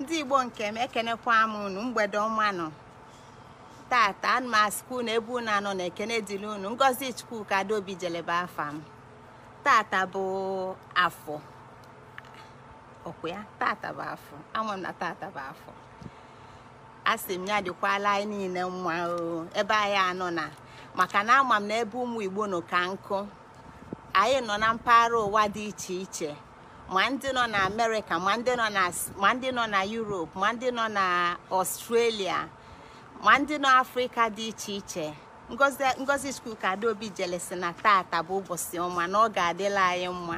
ndị igbo nke m ekenekwa m unu mgbede ọma nọ tata ana m asịkwa unu ebe unu anọ na ekene dịrị unu ngozi chukwuka dobi jelebe afa m tata bụ afọ ọkwa ya tata bụ afọ ama m na tata bụ afọ asị m ya dịkwala anyị niile mma ebe anyị anọ na maka na ama m na ebe ụmụ igbo nọ ka nkụ anyị nọ na mpaghara ụwa dị iche iche ma ndị nọ na amerịka ma ndị nọ na europe ma ndị nọ na ọstrelia ma ndị nọ afrịka dị iche iche ngozi ka adaobi jelesi na tata bụ ụbọchị ọma na ọ ga-adịla anyị mma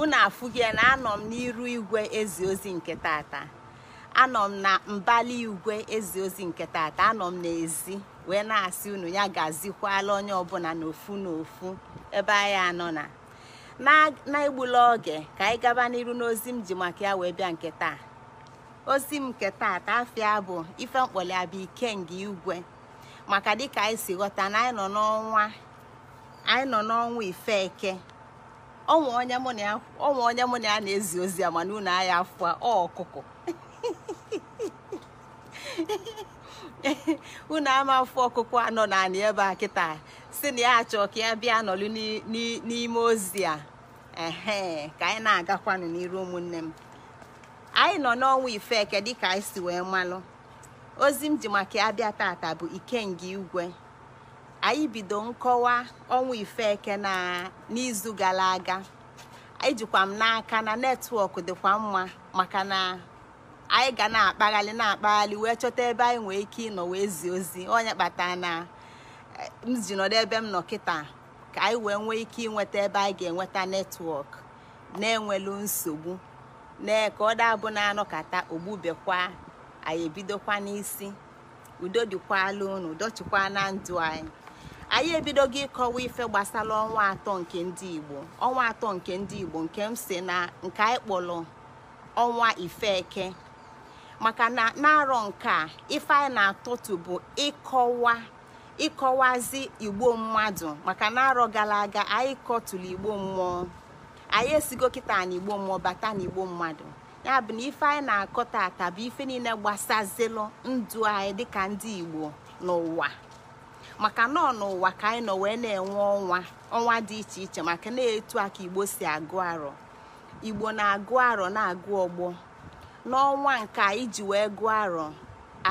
unu afụgie na anọ m n'iru igwe ezi ozi nke tata anọ m na mbali igwe ezi ozi nke tata anọ m n'ezi wee na-asị unu ya gazikwala onye ọbụla n'ofu n'ofu ebe anyị anọ na na-egbula oge ka anyị gaba n'iru n'ozi m ji maka ya wee bịa nke taa ozi m nke taa taafia bụ ife ike ikenga igwe maka dịka anyị si ghọta na anyị nọ n'ọnwa anyị nọ n'ọnwa ife eke ọnwa onye mụ na ya na-ezi ozi ya mana unu agha afọ ọkụkụ unu ama afọ ọkụkọ anọ naanị ebe a kịta si na ya achọ ka ya bịa nọlụ n'ime ozi a ka anyị na-agakwanụ n'iru ụmụnne m anyị nọ n'ọnwa ifeke dịka anyị si wee malụ ozi m ji maka ya bịa tata bụ ikenga igwe anyị bido nkọwa ọnwa ifeke na n'izu gara aga ejikwa m n'aka na netwọk dịkwa mma maka na. anyị ga na-akpaghalị na-akpaghalị wee chọta ebe anyị nwee ike ịnọ wee zi ozi onye kpatara na m ji nọdụ ebe m nọ kịta ka anyị wee nwee ike ịnweta ebe anyị ga-enweta netwọk na-enwelu nsogbu nee ka ọ dabụ na-anọkata ogbubekwa anyị ebidokwa n'isi udo dịkwala unu dochikwa na ndụ anyị anyị ebidogo ịkọwa ife gbasara ọnwa atọ nke ndị Igbo ọnwa atọ nke ndị Igbo nke m si na nke anyị kpọrọ ọnwa Ifeke maka na na-arọ nke a ife na-atụtụ bụ ịkọwa ịkọwazi igbo mmadụ maka na arọ gara aga anyị kọtụrụ igbo mmụọ anyị esigo kịta na igbo mmụọ bata na igbo mmadụ ya bụ na ife anyị na-akọ tata bụ ife niile gbasazilụ ndụ anyị dịka ndị igbo n'ụwa maka nọ n'ụwa ka anyị nọ wee na-enwe ọnwa ọnwa dị iche iche maka na-etu a ka igbo si agụ arọ igbo na-agụ arọ na-agụ ọgbọ n'ọnwa nke iji wee gụọ arọ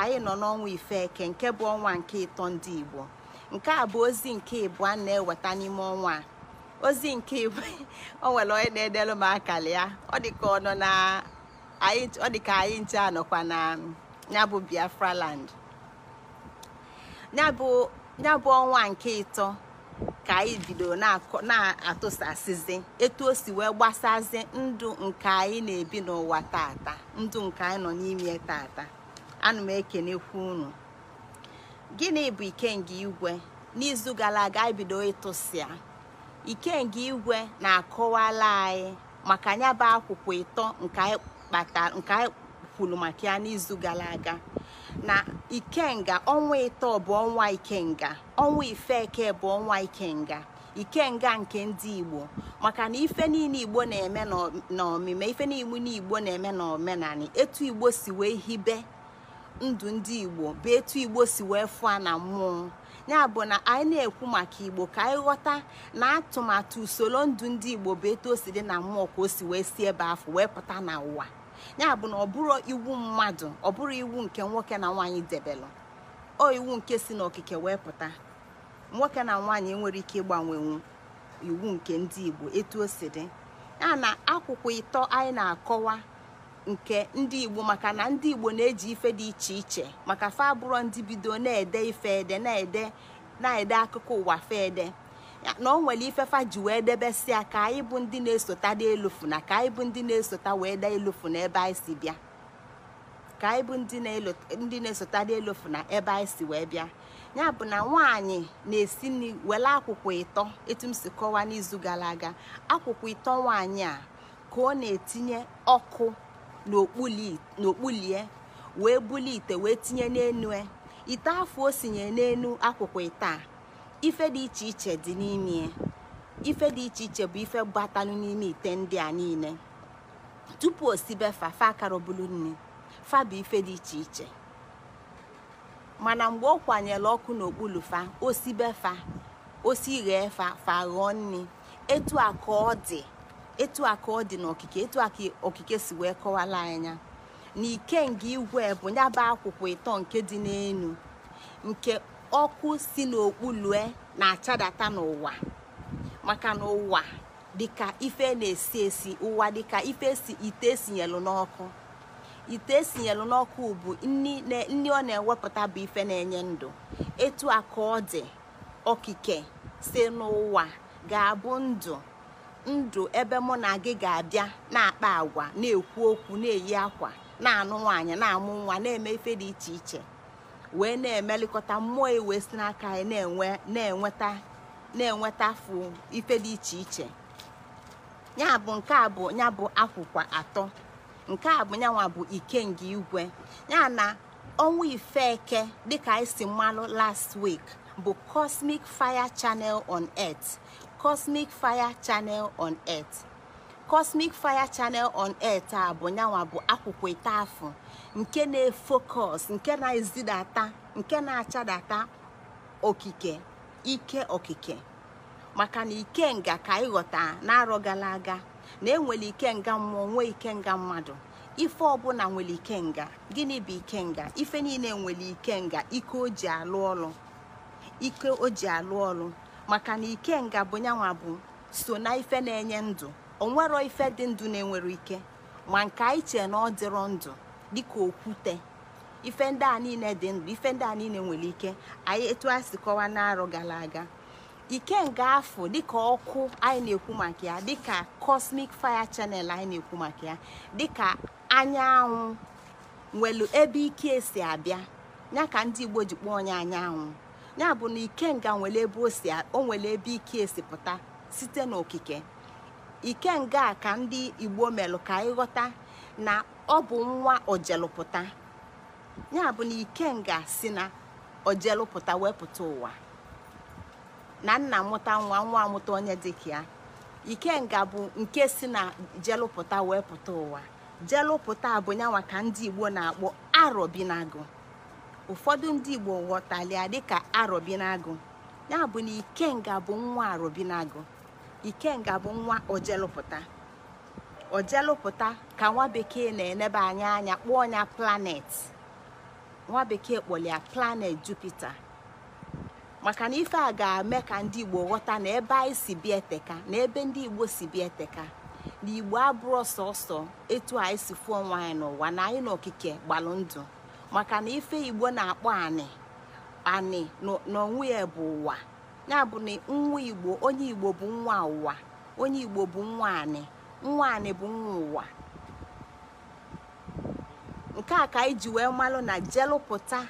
anyị nọ n'ọnwa ife eke nke bụ ọnwa nke ịtọ ndị igbo nke a bụ ozi nke a na-eweta n'ime ọnwa ozi nke ịbụ o nwere onye na-edelu m ya ọ dịka ọ nọ na ọ anyị nche anọkwa na biafra land ya bụ ọnwa nke ịtọ ka anyị bido na-atụsasịzi etu o si wee gbasazi ndụ nke anyị na-ebi n'ụwa tata ndụ nke anyị nọ n'ime tata ana m ekenekwu unu gịnị bụ ikenga igwe n'izu gara aga anyị bido ịtụsịa ikenga igwe na-akọwala anyị maka ya bụ akwụkwọ ịtọ nke anyị kwuru maka ya n'izu gara aga na ikenga ọnwa ịtọ bụ ọnwa ikenga ọnwa ifeke bụ ọnwa ikenga ikenga nke ndị igbo maka na ife niile igbo na-eme n'omime ife niile igbo na-eme n'omenani etu igbo si wee hibe ndụ ndị igbo bụ etu igbo si wee fụa na mmụọ ya bụ na anyị na-ekwu maka igbo ka anyị ghọta na atụmatụ usoro ndụ ndị igbo bụ etu o si dị na mmụọ ka o si wee si ebe afọ wee pụta n'ụwa ya bụ na ọ bụrụ iwu mmadụ ọ bụrụ iwu nke nwoke na nwaanyị debelụ o iwu nke si n'okike wee pụta nwoke na nwaanyị nwere ike ịgbanwenwu iwu nke ndị igbo etu o si dị ya na akwụkwọ ịtọ anyị na-akọwa nke ndị igbo maka na ndị igbo na-eji ife dị iche iche maka fa ndị bido na-ede ife ede na-ede akụkọ ụwa fe ede na ọ nwere ifefa ji wee debesia ka anyị bụ ndị na-esota dị elufu na ka anyị bụ ndị na-esota na si bịa ka anyị bụ ndị na-esota dị elufu na ebe anyị si wee bịa ya bụ na nwaanyị na-esi nri were akwụkwọ ịtọ etu m si kọwaa n'izu gara aga akwụkwọ ito nwaanyị a ka ọ na-etinye ọkụ n'okpulie wee bulie ite wee tinye n'enu e. ite afọ o sinye n'enu akwụkwọ ịta ife dị iche iche dị n'ime ife dị iche iche bụ ife gbatalụ n'ime ite ndị a niile tupu osibe fa fa akarọbulu nne fa bụ ife dị iche iche mana mgbe ọ kwanyere ọkụ n'okpuru fa osi fa osi ghee fa fa ghọọ nne etu a ka ọ dị etu a ka ọ dị n'okike etu a ka okike si wee kọwala anya na nga igwe bụ nyaba akwụkwọ ịtọ nke dị n'enu nke ọkụ si n'okpu lue na-achadata n'ụwa maka na ụwa dịka ife na-esi esi ụwa dịka ife si ite esinyelụ n'ọkụ ite esinyelụ n'ọkụ bụ nri ọ na-ewepụta bụ ife na-enye ndụ etu a ka ọ dị okike si n'ụwa ga-abụ ndụ ndụ ebe mụ na gị ga-abịa na-akpa agwa na-ekwu okwu na-eyi akwa na-anụ nwaanyị na-amụ nwa na-eme ife dị iche iche wee na-emelịkọta mmụọ wee si n'aka na-enweta na-enweta ife dị iche iche ya bụ nke a bụ ya bụ akwụkwa atọ nke a bụ nyanwa bụ ikenge igwe ya na ọnwa eke dịka anyị si mmalụ last week bụ cosmic fire channel on earth cosmic fire channel on earth. Cosmic Fire Channel on air bụ nyanwa bụ akwụkwọ afọ nke na-efokọs nke na-ezidata nke na-achadata okike ike okike maka na ikenga ka ịghọta na-arọ gara aga na enwere ikenga mmụọ nwee ikenga mmadụ ife ọbụla nwere ikenga gịnị bụ ikenga ife niile nwere ikenga ike o ji alụ ọlụ ike o ji alụ ọlụ maka na ikenga bụ nyanwa bụ so na ife na-enye ndụ onwero ife dị ndụ na-enwere ike ma nke anyị chee na ọ dịrọ ndụ dịka okwute ife ndị a niile dị ndụ ife ndị a niile nwere ike anyị etu a si kọwa n'arọ gara aga ike nga afọ dịka ọkụ anyị na-ekwu maka ya dịka cosmic fire channel anyị na-ekwu maka ya dịka anyanwụ nwelu ebe ike esi abịa ya ka ndị Igbo ji kpọọ onye anyanwụ ya bụ na ikenga nwere ebe o si o nwere ebe ike esi pụta site n'okike ikenga a ka ndị igbo melụ ka ịghọta na ọ bụ nwa ojelụpụta ya bụ na ikenga si na ojelụpụta wepụta ụwa na nna mụta nwa nwa amụta onye dịka ya ikenga bụ nke si na jelụpụta wepụta ụwa jelụpụta bụ nyanwa ka ndị igbo na-akpọ arọbinagụ ụfọdụ ndị igbo ghọtalịa dịka arọbinagụ ya bụ na ikenga bụ nwa arọbinagụ ikenga bụ nwa ojelụpụta ojelụpụta ka nwa bekee na enebe anya anya kpọọ ya planet nwa bekee kpọlịa planet jupiter maka na ife a ga-eme ka ndị igbo ghọta na ebe anyị si bịa eteka na ebe ndị igbo si bịa eteka na igbo abụrụ sọsọ etu anyị si fụọ nwa anyị n'ụwa na anyị n'okike gbalụ maka na ife igbo na-akpọ anị anị onwe ya bụ ụwa ya bụ na nwa igbo onye igbo bụ nwa ụwa onye igbo bụ nwa anị nwa anị bụ nwa ụwa nke a ka anyị ji wee malụ na jelụpụta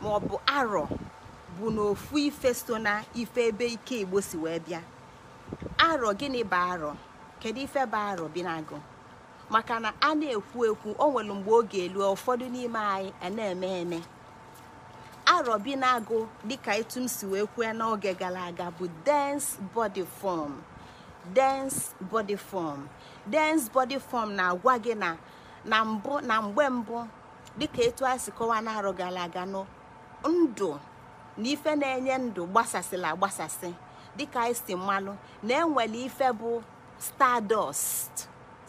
ma ọ bụ arọ bụ n'ofu ife so na ife ebe ike igbo si wee bịa arọ gịnị bụ arọ kedu ife bụ arọ bi na-agụ maka na a na-ekwu ekwu o nwere mgbe oge elu ụfọdụ n'ime anyị a eme bi na-agụ dịka etu m si wee kwue n'oge gara aga bụ dens body form dense body form dense body form na-agwa gị na na mbụ na mgbe mbụ dịka etu a si kọwaa na-arọ gara aga nụ ndụ na ife na-enye ndụ gbasasịla agbasasị dịka isi e mmanụ na enwere ife bụ stardust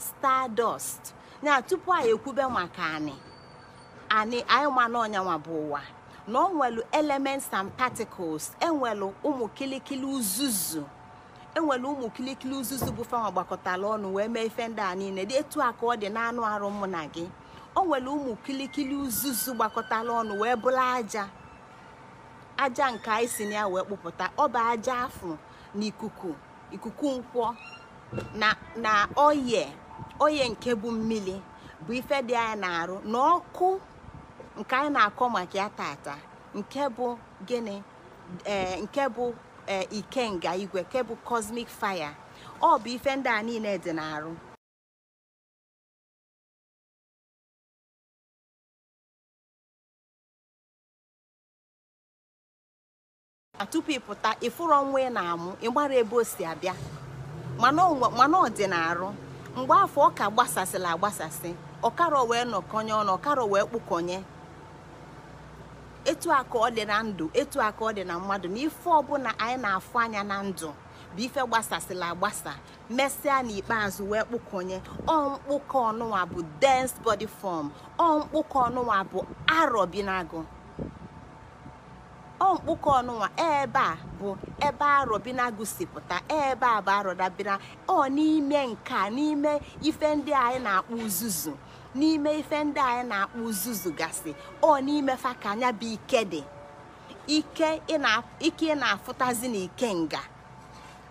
stardust ya tupu anyị ekwube maka anị anyị anyị ma na ọnyanwa bụ ụwa na ọ nwere elements and particles enwelu ụmụ kilikili uzuzu enwere ụmụ kilikili uzuzu bụ fama gbakọtara ọnụ wee mee ife ndị a niile dị etu a ka ọ dị n'anụ arụ mụ na gị o nwere ụmụ kilikili uzuzu gbakọtara ọnụ wee bụrụ aja aja nke anyị si na ya wee kpụpụta ọ bụ aja afụ na ikuku nkwọ na oye oye nke bụ mmiri bụ ife dị anyị na-arụ na ọkụ nke anyị na-akọ maka ya tata nke bụ gịnị nke bụ ikenga igwe nke bụ cosmic fire ọ bụ ife ndị a niile dị n'arụ tupu ịpụta ịfụrụ ọnwa ị na-amụ ịgbara ebe o si abịa mana ọ dị na mgbe afọ ọ ka gbasasịla agbasasị ọkara wee nọkọnye ọnụ ọkara wee kpụkọnye etu a ọ dị na ndụ etu a ka ọ dị na mmadụ na ife ọbụla anyị na-afụ anya na ndụ bụ ife gbasasịla agbasa mesịa n'ikpeazụ wee ọ ọmkpụkọ ọnụnwa bụ dense body form ọmkpụkọ ọnụnwa bụ arọ bi n'agụ ọmkpụkọ ọnụnwa ebe a bụ ebe arọ bi si ebe a bụ arọ dabira ọ n'ime nka n'ime ife ndị anyị na akpụ uzuzu n'ime ife ndị anyị na-akpụ uzuzu gasị ọ n'ime fa ka anya bụ ike dị ike ị na-afụtazi na ike nga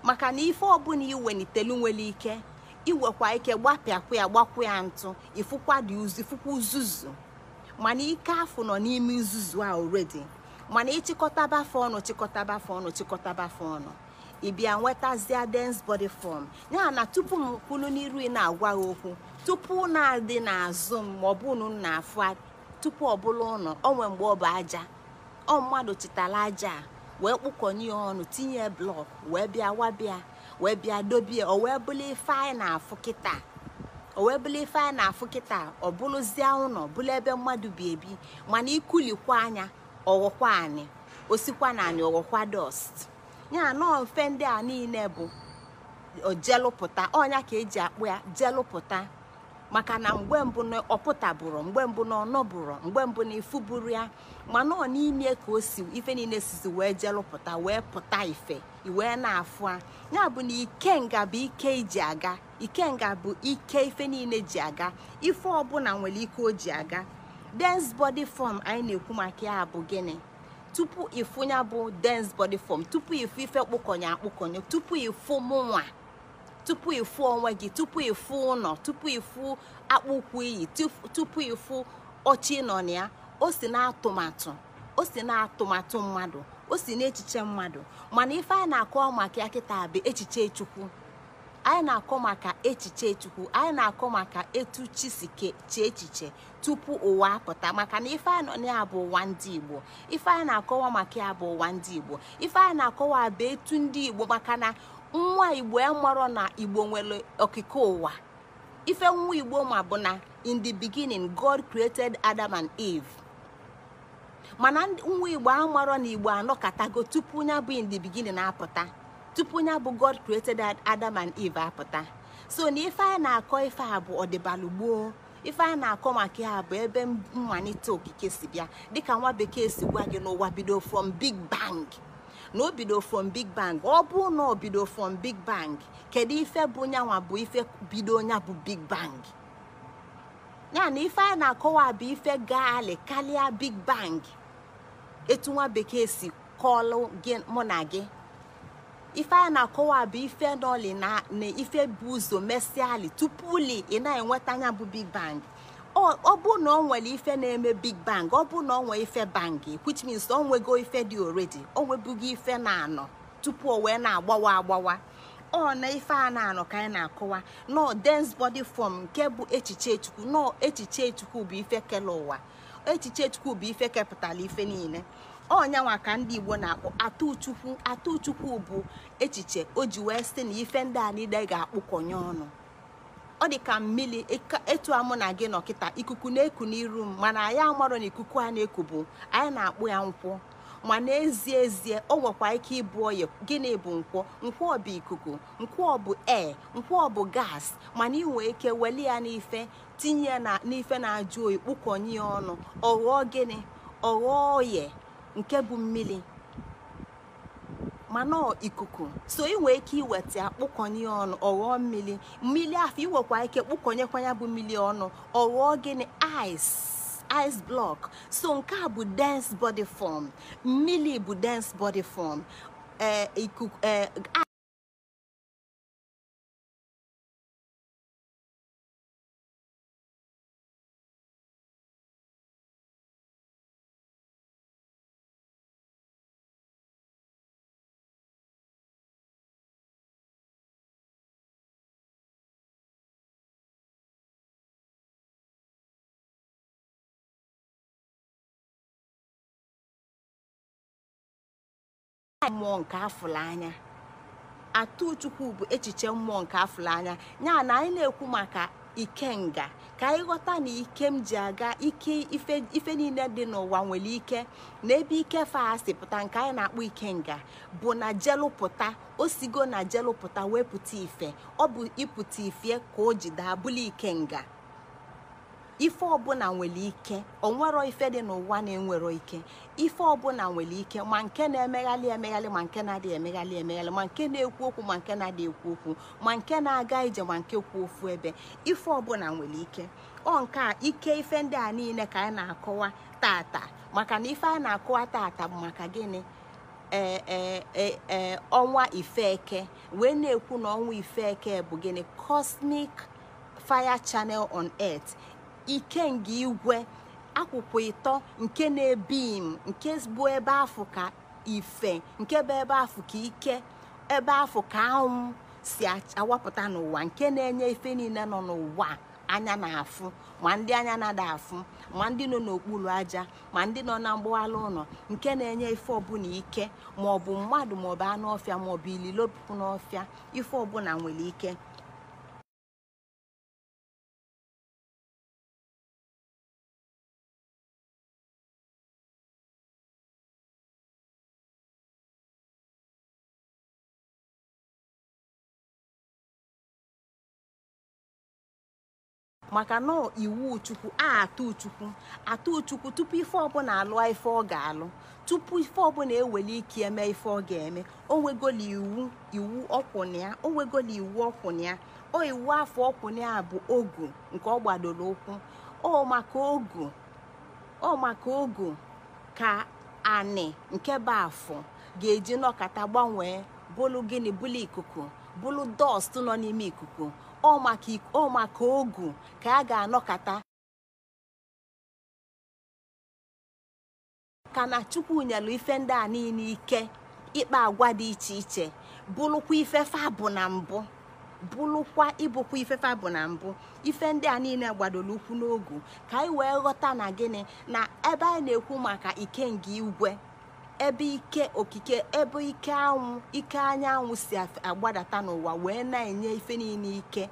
maka na ife ọbụla iwelitelu nwere ike iwekwa ike gbapịakwu ya gbakwu ya ntụ ifụkwa dị ifụkwa uzuzu mana ike afụ nọ n'ime uzuzu a oredi mana ịchịkọta fa ọnụ chịkọtaba chịkọta ọnụ chịkọtaba fa ọnụ ịbịa nwetazia dense body form ya na tupu m kwulu n'iru ị na-agwa ha okwu tupu unu adị n'azụ m ma ọ bụ unu na-afụ tupu ọ bụla ụnọ o nwee mgbe ọ bụ aja ọ mmadụ chịtara aja a wee kpụkọnye ya ọnụ tinye blọk wee bịa wabịa wee bịa dobie o wee bụla ife anyị na-afụ kịta o wee bụla ife anyị na-afụ kịta ọ bụrụzie ụnọ bụla ebe mmadụ bi ebi mana ikulikwa anya ọghọkwa anyị osikwa na anyị ọghọkwa dọst ya nọọ mfe ndị a niile bụ ojelụpụta ọnya ka eji akpụ ya jelụpụta maka na mgbe mbụ na ọpụtabụrụ mgbe mbụ na ọnọbụrụ mgbe mbụ na ifuburu ya mana ọ n'ime ka o si ife niile sizi wee jelụpụta wee pụta ife iwee na-afụ a ya bụ na ikenga bụ ike iji aga ikenga bụ ike ife niile ji aga ife ọbụla nwere ike o ji aga dens body fọm anyị na-ekwu maka ya bụ gịnị tupu ịfụ ya bụ dense body fọm tupu ịfụ ife kpụkọnye akpụkọnye tupu ịfụ mụnwa tupu ịfụ onwe gị tupu ịfụ ụlọ tupu ịfụ akpụkpọ iyi tupu ịfụ ọchị nọ na ya o si n'atụmatụ o si n'atụmatụ mmadụ o si n'echiche mmadụ mana ife anyị na-akọ maka ya kịta bụ echiche chukwu anyị na-akọ maka echiche chukwu anyị na-akọ maka etu chi si chee echiche tupu ụwa apụta maka na ife anyị nọ na ya bụ ụwa ndị igbo ife anyị na-akọwa maka ya bụ ụwa ndị igbo ife anyị na-akọwa bụ etu ndị igbo maka na. nwa igbo amarọ na igbo nwere okike ụwa ife nwa igbo ma bụ na in the beginning god created adam and eve mana nwa igbo amarọ na igbo anọkatago tupu ya bụ in the beginning apụta tupu ya bụ god created adam and eve apụta so na ife a na-akọ ife a bụ ọdịbalụgboo ife a na-akọ maka ya bụ ebe mmalite okike si bịa dịka nwa bekee si gwa gị n'ụwa bido from big bang na o bido from big bang ọ bụ na o from big bang kedu ife bụ nyanwa bụ ife bido nya bụ big bang ya na ife a na-akọwa bụ ife gaali karịa big bang etu nwa bekee si kọlụ gị mụ na gị ife a na-akọwa bụ ife nọli na ife bụ ụzọ mesiali tupu li ị na-enweta anya bụ big bang ọ bụ na ọ nwere ife na-eme big bang ọ bụ na ọ nwee ife bangi which means o nwego ife dị oredi o nwebughị ife na-anọ tupu o wee na-agbawa agbawa ọ na ife a na-anọ ka anyị na-akọwa nọ dense bọdi fọm nke bụ echiche chukwu nọ echiche chukwu bụ ife kele ụwa echiche chukwu bụ ife kepụtara ife niile ọnyanwa ka ndị igbo na-akpọ atụchukwu atụchukwu bụ echiche o ji wee sị na ife ndị a niile ga-akpụkọnye ọnụ ọ dị ka mmiri etu amụ na gị nọkịta ikuku na-eku n'iru m mana anyị amarọ na ikuku a na-eku bụ anyị na-akpụ ya nkwụ ma n'ezie ezie o nwekwa ike ịbụ oyi gịnị bụ nkwọ nkwọ bụ ikuku nkwọ bụ ee nkwọ bụ gas mana ị nwee ike weli ya n'ife tinye ya n'ife na-ajụ oyi kpụkọnye ọnụ ọ gịnị ọ ghọọ oye nke bụ mmiri mana ikuku so ị ike iweta kpụkọnye ọnụ ọghọọ mmiri mmiri afọ iwekwa ike kpụkọnyekwanya bụ mmiri ọnụ ọghọọ gịnị ice ice block so nke a bụ dense body form mmiri bụ dense body form eh, eh, mmụọ nke afụla anya atụchukwu bụ echiche mmụọ nke afụla anya ya na anyị na-ekwu maka ikenga ka anyị ghọta na ike m ji aga ike ife niile dị n'ụwa nwere ike na ebe ike fasi pụta nke anyị na-akpọ ikenga bụ na jelụpụta osigo na jelụpụta wepụta ife ọ bụ ịpụta ife ka o jide bụla ikenga ife ọbụla nwere ike onwero ife dị n'ụwa na-enwero ike ife ọbụla nwere ike ma nke na-emeghalị emeghalị ma nke na-adịghị emeghalị emeghalị ma nke na-ekwu okwu ma nke na-adịghị ekwu okwu ma nke na-aga ije ma nke kwuo ofu ebe ife ọbụla nwere ike ọ nke a ike ife ndị a niile ka anyị na-akọwa tata maka na ife a na-akọwa tata bụ maka gịnị ee e, e, e, ọnwa ifeke wee na-ekwu na ọnwa ifeke bụ gịnị cosmic fire channel on earth ikenga igwe akwụkwọ ịtọ nke na m, nke bụ ebe afụ ka ife nke bụ ebe afụ ka ike ebe afụ ka anwụ si awapụta n'ụwa nke na-enye ife niile nọ n'ụwa anya na-afụ ma ndị anya na-ada afụ ma ndị nọ n'okpuru aja ma ndị nọ na mgbọala ụlọ nke na-enye ife ọbụla ike maọbụ mmadụ maọbụ anụ ọfịa maọbụ ililopụ n'ọfịa ife ọbụla nwere ike maka na iwu chukwu a atụ chukwu atụ chukwu tupu ife ọbụla alụọ ife ọ ga-alụ tupu ife ọbụla eweli ike eme ife ọ ga-eme onwegola iwu iwu ọkwụnya onwegola iwu ọkwụnya o iwu afọ ọkwụnya bụ ogu nke ọ gbadoro ụkwụ o maka ogu o maka ogu ka anị nke bụ afọ ga-eji nọkata gbanwee bụlụ gịnị bụlụ ikuku bụlụ dọst nọ n'ime ikuku ọ maka ogu ka a ga-anọkata ka na chukwu nyelu ife ndị a niile ike ịkpa agwa dị iche iche bụlụkwa ifefe abụ na mbụ ịbụkwa ifefe abụ na mbụ ife ndị a niile gbadoro ukwu n'ogu ka anyị wee ghọta na gịnị na ebe anyị na-ekwu maka ike nke igwe ebe ike okike ebe ike anwụ ike anyanwụ si agbadata n'ụwa wee na-enye ife niile ike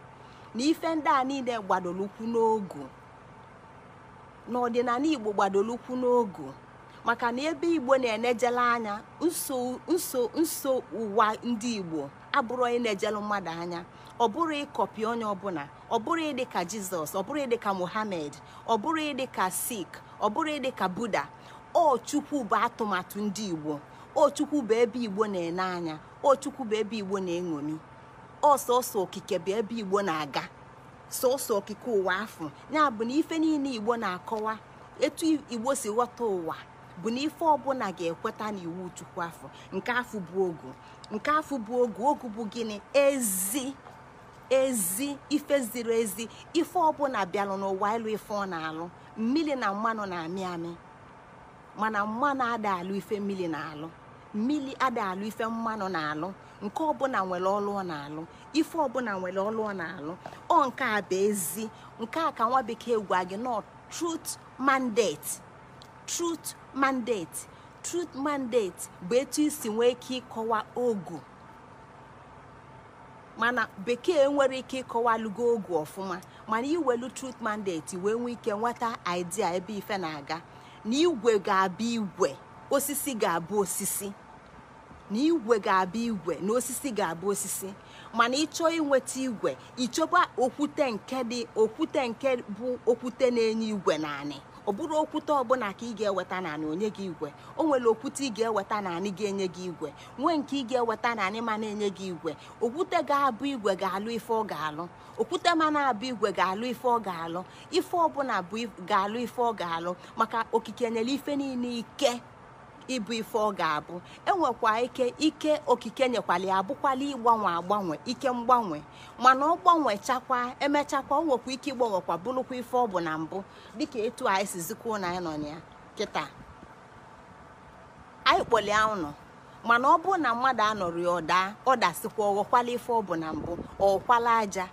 na ife ndị a niile gbadolukwu n'ogu n'ọdịnala igbo gbadolukwu n'ogu maka na ebe igbo na-enejele anya nso nso ụwa ndị igbo abụrụ onye na mmadụ anya ọ bụrụ ịkọpi onye ọbụla ọ bụrụ ịdị ka jizọs ọ bụrụ ịdị ka ọ bụrụ ịdị ka sik ọ bụrụ ịdị ka buda ochukwu bụ atụmatụ ndị igbo ochukwu bụ ebe igbo na-ene anya ochukwu bụ ebe igbo na-eṅomi ọsọsọ okike bụ ebe igbo na-aga sọsọ okike ụwa afọ ya bụ na ife niile igbo na-akọwa etu igbo si ghọta ụwa bụ na ife ọbụla ga-ekweta na iwu chukwu afọ nke afọ bụ ogu nke afọ bụ ogu ogu bụ gịnị ezi ezi ife ziri ezi ife ọbụla bịalụ n'ụwa ịlụ ife ọ na-alụ mmiri na mmanụ na-amị amị mana mmanụ ada alụ ife mmiri na-alụ mmiri ada alụ ife mmanụ na-alụ nke ọbụla nwere ọlụ ọ na-alụ ife ọbụla nwere ọlụ ọ na-alụ ọ nke a bụ ezi nke a ka nwa bekee gwa gị nọ trut mandate truth mandate trut mandate bụ etu isi nwee ike ịkọwa ogu mana bekee nwere ike lugo ogu ọfụma mana iwelu truth mandate wee nwee ike nweta idea ebe ife na-aga na igwe ga-abụ igwe osisi ga-abụ osisi na igwe osisi ga-abụ osisi mana ịchọọ inweta igwe ịchọba okwute nke dị okwute nke bụ okwute na-enye igwe naanị ọ bụrụ okwute ọbụla ka ị ga-eweta naanị onye gị igwe o nwere okwute ị ga-eweta naanị ga-enye gị igwe nwee nke ị ga-eweta naanị ma na-enye gị igwe okwute ga-abụ igwe ga-alụ ife ọ ga-alụ okwute ma abụ igwe ga-alụ ife ọ ga-alụ ife ọbụla bụ ga-alụ ife ọ ga-alụ maka okike nyere ife niile ike ịbụ ife ọ ga-abụ enwekwa ike ike okike nyekwala ya abụkwala ịgbanwe agbanwe ike mgbanwe mana ọ gbanwechakwa emechakwa o nwekwa ike ịgbanwekwa bụrụkwa ife ọ bụ na mbụ dịka etu anyị si na anyị nọ na ya kịta anyị kpọlia ụnụ mana ọ bụrụ na mmadụ anọrọ ya ọda ọdasikwa ọghọkwala ife ọ bụ na mbụ ọkwala aja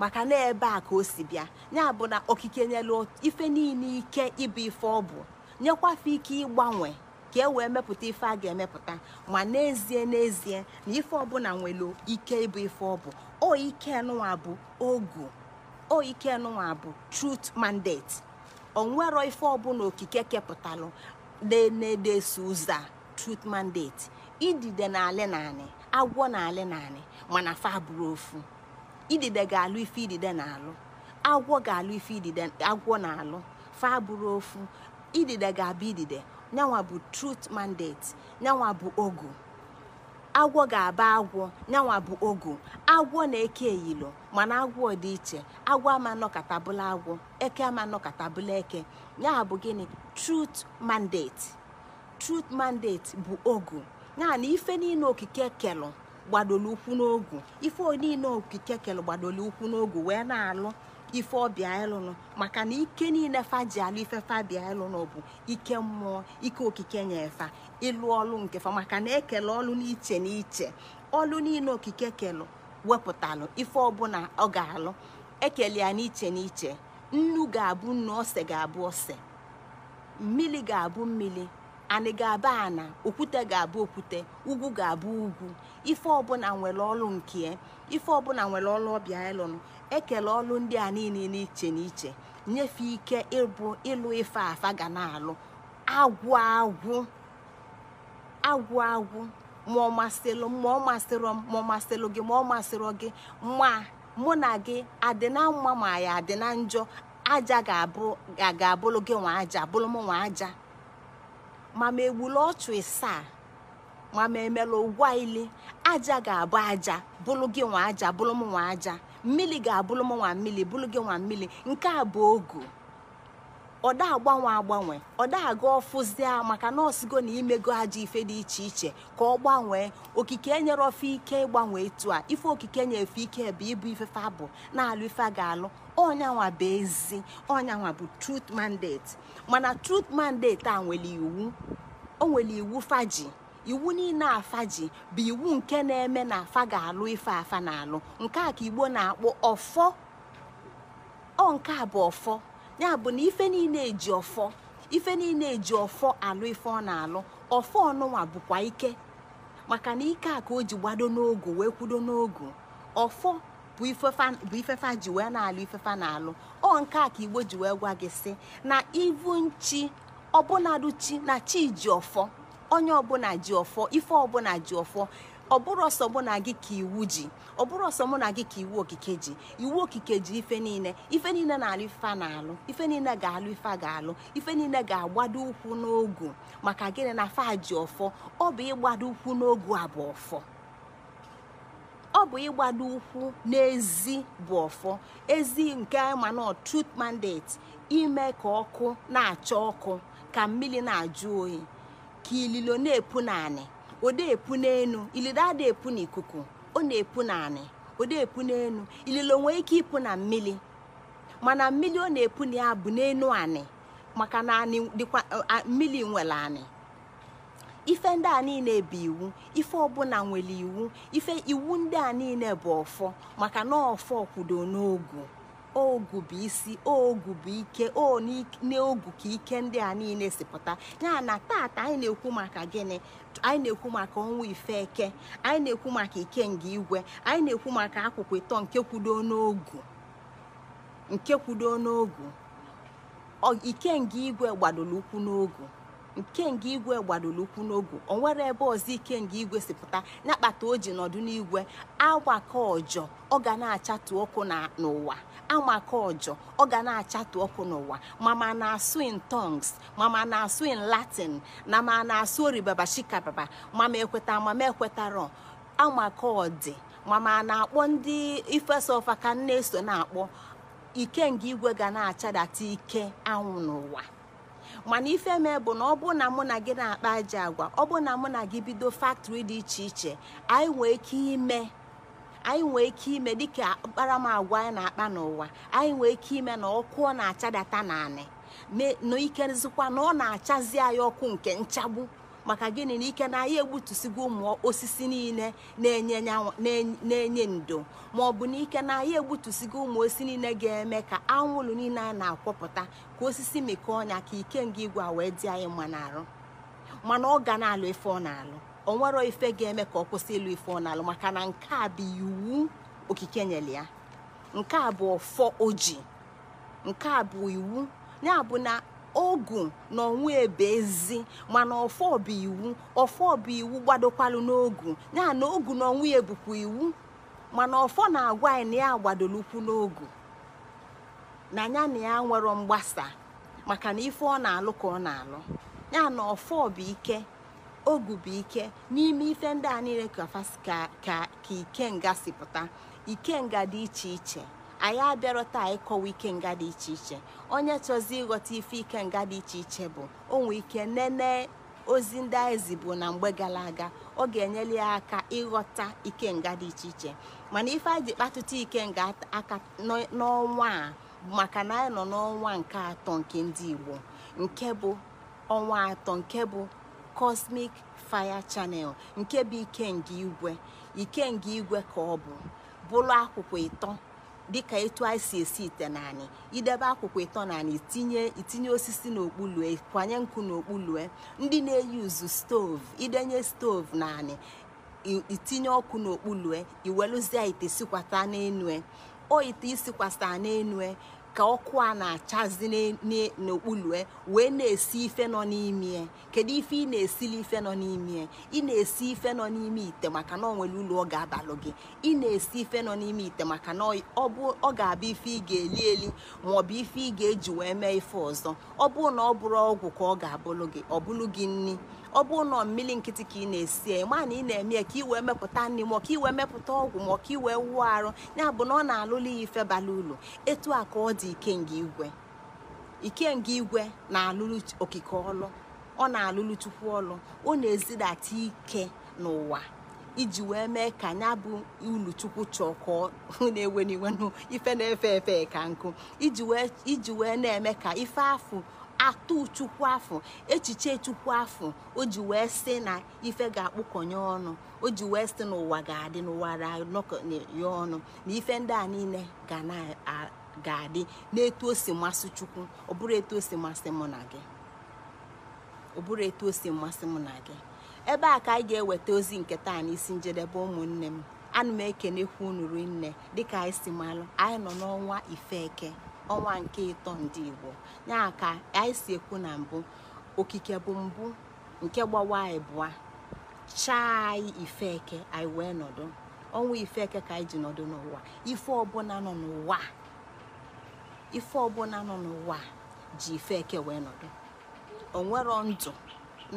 maka na ebe a ka o si bịa ya bụ na okike nyelu ife niile ike ịbụ ife ọ bụ nyekwafa ike ịgbanwe ka e wee mepụta ife a ga-emepụta ma n'ezie n'ezie na ife ọbụla nwere ike ịbụ ife ọ bụ o ike nụwa bụ ogu o ike nụwa bụ truth mandate onwero ife ọbụla okike kepụtalụ na-edeso ụzọ a truth mandate idide na-alị naanị agwọ na-alị naanị mana fa bụrụ ofu idide ga-alụ ife idide na-alụ agwọ ga-alụ ife idide agwọ na-alụ fa bụrụ ofu idide ga-abụ idide nyanwa bụ truth mandate nyanwa bụ ogu agwọ ga-aba agwọ nyanwa bụ ogu agwọ na-eke eyilo mana agwọ dị iche agwọ ama bụla agwọ eke ama bụla eke ya bụ gịnị truth mandate truth mandate bụ ogu ya ife niile okike kelụ gbadoro ukwu n'ogu ife niile okike kelụ gbadoro n'ogu wee na-alụ ife ọbịa ịlụnụ maka na ike niile fa ji alụ ife fa ịlụnụ bụ ike mmụọ ike okike nye fa ịlụ ọlụ nke fa maka na ekele ọlụ n'iche n'iche ọlụ niile okike kelụ wepụtalụ ife ọbụla ọ ga-alụ ekele ya n'iche n'iche nnu ga-abụ nnu ose ga-abụ ose mmiri ga-abụ mmiri anị ga-abụ ana okwute ga-abụ okwute ugwu ga-abụ ugwu ife ọbụla nwere ọlụ nke ife ọbụla nwere ọlụ ọbịa ịlụnụ ekele ọlụ ndị a niile n'iche n'iche nyefe ike ịbụ ịlụ ife afa ga na-alụ agwụ agwụ agwụ agwụ ma ọ masịrị ma ọ masịrị gị ma ọ masịrị gị ma mụ na gị adị na mma ma ya adị na njọ aja ga-abụrụ gị nwa aja bụrụ m nwa aja ma ma egbula ọchụ ịsaa ma ma emela ụgwọ ile aja ga-abụ aja bụrụ gị nwa aja bụrụ m nwa aja mmiri ga-abụrụ m nwa mmiri bụrụ gị nwa mmiri nke a bụ ogu ọda agbanwe agbanwe ọda aga ọfụzia maka na na imego ajọ ife dị iche iche ka ọ gbanwee okike enyere ofe ike ịgbanwe etu a ife okike na-efe ike bụ ịbụ ifefe bụ na-alụ ife ga-alụ ọnyanwa bụ ezi ọnyanwa bụ truth mandate mana truth mandate a nwere iwu o nwere iwu faji iwu niile afa ji bụ iwu nke na-eme na afa ga-alụ ife afa na-alụ nke a ka igbo na akpụ ọfọ ọ nke a bụ ọfọ ya bụ na ife niile eji ọfọ ife niile eji ọfọ alụ ife ọ na-alụ ọfọ ọnụnwa bụkwa ike maka na ike a ka o ji gbado n'ogu wee kwudo n'ogu ọfọ bụ ifefa ji wee na-alụ ifefa na-alụ ọ nke a ka igbo ji wee gwa gị sị na ivu nchi ọbụnadụ chi na chi ji ọfọ onye ọbụla ji ọfọ ife ọbụla ji ọfọ ọ bụrụ ọsọ mụ na gị ka iwu ji ọ bụrụ ọsọ mụ na gị ka iwu okike ji iwu okike ji ife niile ife niile na-alụ ife na-alụ ife niile ga-alụ ife ga-alụ ife niile ga-agbado ụkwụ n'ogu maka gịnị na fa ji ọfọ ọ bụ ịgbado ụkwụ n'ogu a bụ ọfọ ọ bụ ịgbado ụkwụ n'ezi bụ ọfọ ezi nke mana truth mandate ime ka ọkụ na-acha ọkụ ka mmiri na-ajụ oyi ka ililo na-epu naanị ode epu n'enu ilido ada epu n'ikuku ọ na-epu naanị ode epu n'enu ililo nwee ike ịpụ na mmiri mana mmiri ọ na-epu na ya bụ n'enu anị maka na mmiri nwere anị ife ndị a niile bụ iwu ife ọbụla nwere iwu ife iwu ndị a niile bụ ọfọ maka na ọfọ kwudo n'ogu ogu bụ isi ogu bụ ike o n'ogu ka ike ndị a niile si pụta ya na tata anyị na-ekwu maka gịnị anyị na-ekwu maka ọnwa ife eke anyị na-ekwu maka nga igwe anyị na-ekwu maka akwụkwọ ịtọ nke kwudo n'ogu nke kwudo n'ogu ikenga igwe gbadoro ụkwụ n'ogu ikenga igwe gbadoro ukwu n'ogu o nwere ebe ọzọ nga igwe si pụta na akpata o ji nọdụ n'igwe agbaka ọjọ ọ ga na-achatụ ọkụ n'ụwa amaka ọjọ ọ ga na-achatụ ọkụ n'ụwa mama na-asụ in tongues mama na-asụ in latin na ma na-asụ oribaba shikababa mama ekweta mama ekwetarọ amaka ọdị mama na-akpọ ndị ifesa ka nne so na-akpọ ikenga igwe ga na-achadata ike anwụ n'ụwa mana ife mee bụ na ọ bụ na mụ na gị na-akpa aja agwa ọ bụ na mụ na gị bido faktọri dị iche iche anyị nwee ike ime anyị nwee ike ime dịka anyị na-akpa n'ụwa anyị nwee ike ime na ọkụ ọ na-achadata naanị na ikerezikwa na ọ na-achazi anyị ọkụ nke nchagbu maka gịnị na ike na anyị egbutusigo ụmụ osisi niile na-enye ndo ma ọ bụ na ike na anyị egbutusigo ụmụ osisi niile ga-eme ka anwụrụ niile a na-akwọpụta ka osisi mekọọ ọnya ka ike nga igwe a wee dị anyị mma n'arụ mana ọ ga na-alụ ife ọ na-alụ o nwere ife ga-eme ka ọ kwụsị ịlụ ife ọ na-alụ maka na nke a bụ iwu okike nyere ya nke a bụ ọfọ oji nke a bụ iwu ya bụ na ogu na onwe ebe ezi mana ọfọ bụ iwu ọfọ iwu gbadokwalu n'ogu ya na ogu na onwe ya bụkwa iwu mana ọfọ na-agwa anyị na ya gbadolukwu n'ogu na ya na ya nwere mgbasa maka na ife ọ na-alụ ka ọ na-alụ ya na ọfọ bụ ike ogu bụ ike n'ime ife ndị a niile ka ka ike nga si pụta ike nga dị iche iche anyị abịarọ taa ịkọwa ike nga dị iche iche onye chọzi ịghọta ife ike nga dị iche iche bụ onwe ike nene ozi ndị anyị zibu na mgbe gara aga ọ ga-enyere ya aka ịghọta ike nga dị iche iche mana ife anyị ji kpatụta nga aka n'ọnwa a maka na anyị nọ n'ọnwa nke atọ nke ndị Igbo nke bụ ọnwa atọ nke bụ Cosmic Fire Channel nke bụ ikenga igwe ikenga igwe ka ọ bụ bụrụ akwụkwọ ịtọ dịka etu anyị esi ite naanị idebe akwụkwọ ịtọ naanị itinye itinye osisi n'okpulue kwanye nkụ n'okpulue ndị na-eyuzu stoovu idenye stovu naanị itinye ọkụ n'okpulue iweluzie ite sikwata n'enue o ite isikwasa n'enue ka ọkụ a na-achazi n'okpulue wee na-esi ife nọ n'ime kedu ife ị na-esili ife nọ n'ime ị na-esi ife nọ n'ime ite maka na ọ nwere ụlọ ọ ga-abalụ gị ị na-esi ife nọ n'ime ite maka na ọ ga abụ ife ị ga-eli eli ma ọ bụ ife ị ga-eji wee mee ife ọzọ ọ bụrụ na ọ bụrụ ọgwụ ka ọ ga-abụlụ gị ọ bụlụ gị nni ọ bụ ụlọ mmiri nkịtị ka ị na-esi ma na ị na-eme ka ị wee mepụta nri ma ka ị wee mepụta ọgwụ ma ka ị wee arụ ya bụ na ọ na-alụla ya ife bara ụlọ etu a ka ọ dị ikenga igwe ikenga igwe na-alụrụ okike ọlụ ọ na-alụrụ chukwu ọlụ ọ na-ezidata ike n'ụwa iji wee mee ka ya bụ ulu chukwu chọọ ka na-ewe n'iwe ife na-efe efe ka nkụ iji wee na-eme ka ife afụ atụ chukwu afọ echiche chukwu afọ o ji wee sị na ife ga-akpụkọnye ọnụ o ji wee sị na ụwa ga-adị n'ụwa ya ọnụ na ife ndị a niile ga na-ga-adị n'etu o si masị chukwu ọ bụrụ masị mụ na gị ọ bụrụ etu o si masị mụ na gị ebe a ka anyị ga-eweta ozi nke taa n'isi njedebe ụmụnne m ana m ekenekwu unu rinne dịka anyị si malụ anyị nọ n'ọnwa ife eke ọnwa nke ịtọ ndị Igbo ya ka anyị si ekwu na mbụ okike bụ mbụ nke gbawa anyị bụa chaa anyị ifeke anyị wee nọdụ ọnwa ifeke ka anyị ji nọdụ n'ụwa ife ọbụla nọ n'ụwa ife ọbụla nọ n'ụwa ji ifeke wee nọdụ onwero ndụ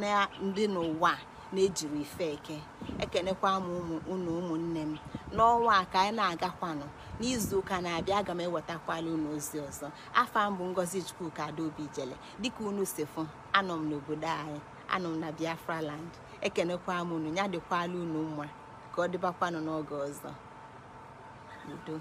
na ndị n'ụwa na-ejiri ifeke ekenekwa m ụmụ unu ụmụnne m n'ọnwa a ka anyị na-agakwanụ n'izu ụka na-abịa aga m ewetakwala unu ozi ọzọ afọ mbụ ngozi chukwuka obi jele dịka unu si fụ anọ m n'obodo anyị anọ m na biafra land ekenekwa m unu ya dịkwala unu mma ka ọ dịbakwanụ n'oge ọzọ udo